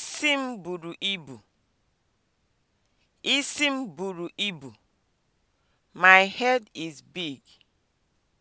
Isi m buru ibu. Isi m buru ibu. My head is big.